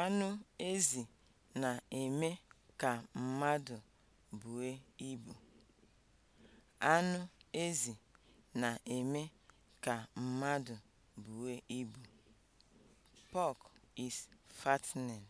Anụ ezi na-eme ka mmadụ bue ibu. Anụ is fattening.